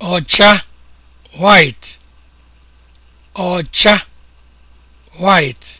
ọcha white ọcha white